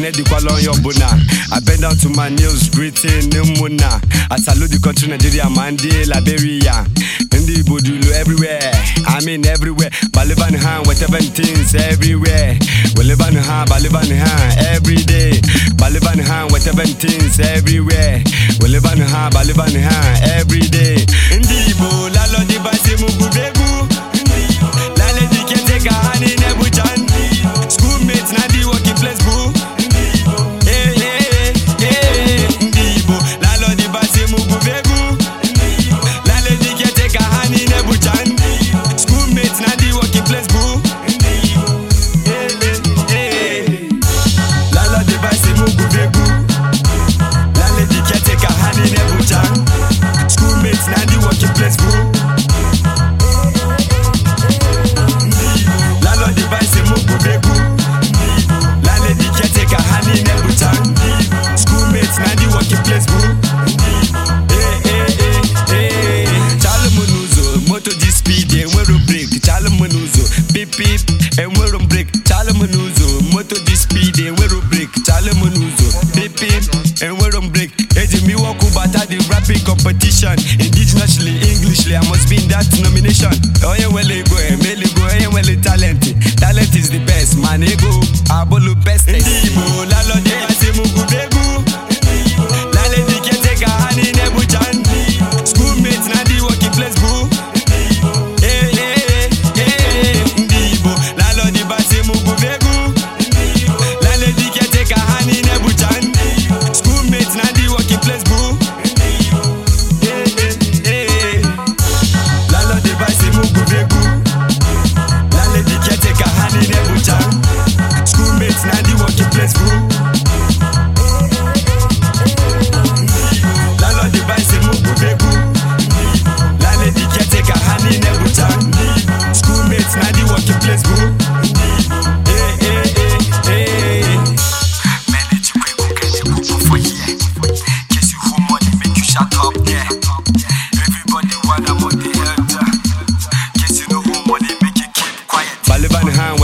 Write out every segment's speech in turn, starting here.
ekene dịkwala onye ọbụla I bend down to my nails greeting ụmụnna I salute the country Nigeria ma ndị Liberia ndị Igbo dị everywhere I mean everywhere balịban ha weteben things everywhere weleban ha balịban ha everyday balịban ha weteben things everywhere weleban ha balịban ha everyday na di working place bro eh, eh, eh, moto ji speed enwero breki chalụ m n'ụzọ enwero m breki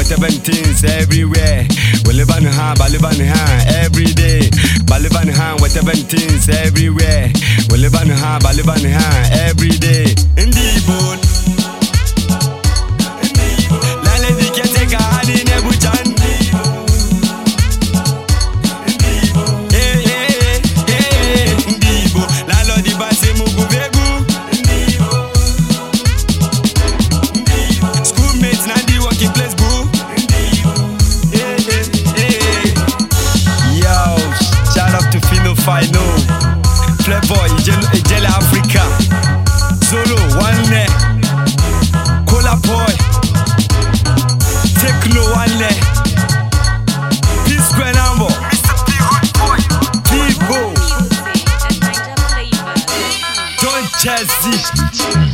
17s everywhere. We live on the high, but live on the high. Jazzy.